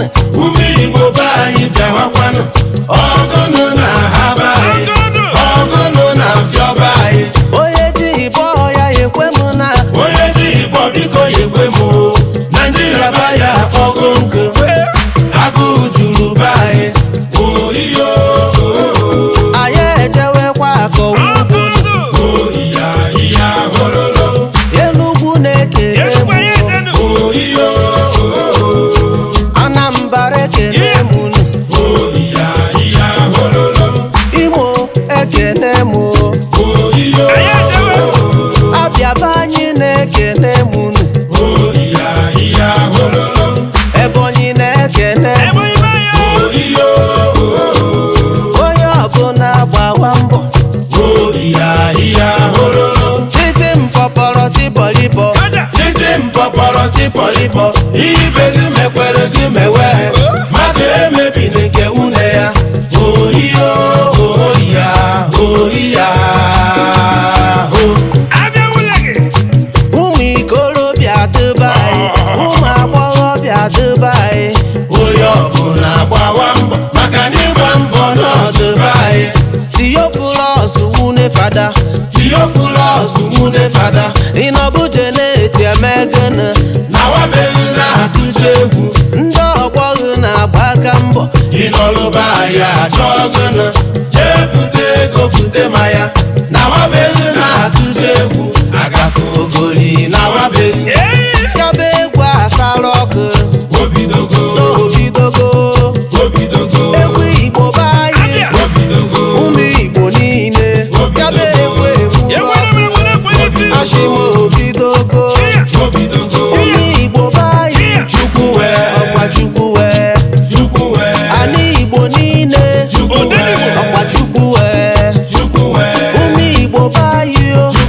nne ume igbo be anyị bịawakwanụ ọgụnụ na ha be anyị ọgụnụ na mfịọ be anyị onye di igbo ya ekwe m na onye di igbo biko ya ekwe m naijiria ba ya akpọgo nkụ agụụ juru gbakwa mbọ titi mpọpọrọ tipọlipọ titi mpọpọrọ ibe gị mekwere gị mewe mmadụ emebili nke nwunye ya ene fada ịnọbuje na-eti emegene na atụcha egwu ndị ọgbọ na-agba mbọ ịnọlụba ya achọ gịnụ jee fute ego fute ma ya nawabeghị na atụcha egwu Igbo o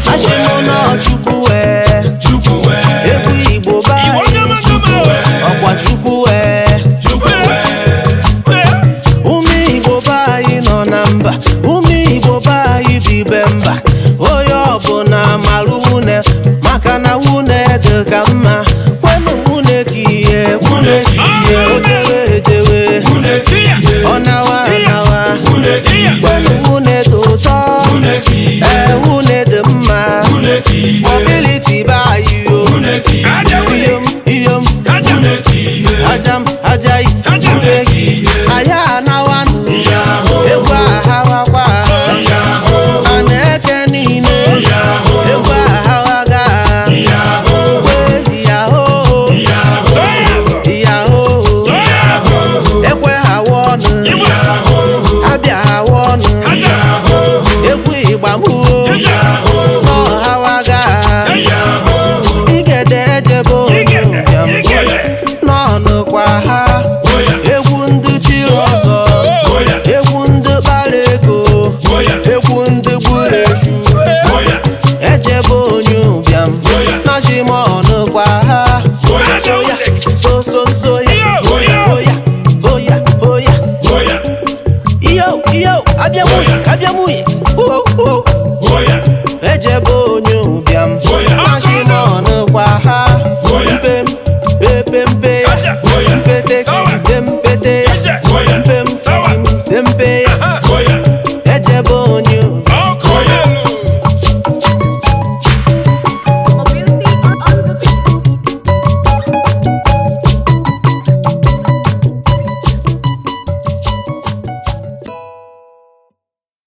kabi amu oh oh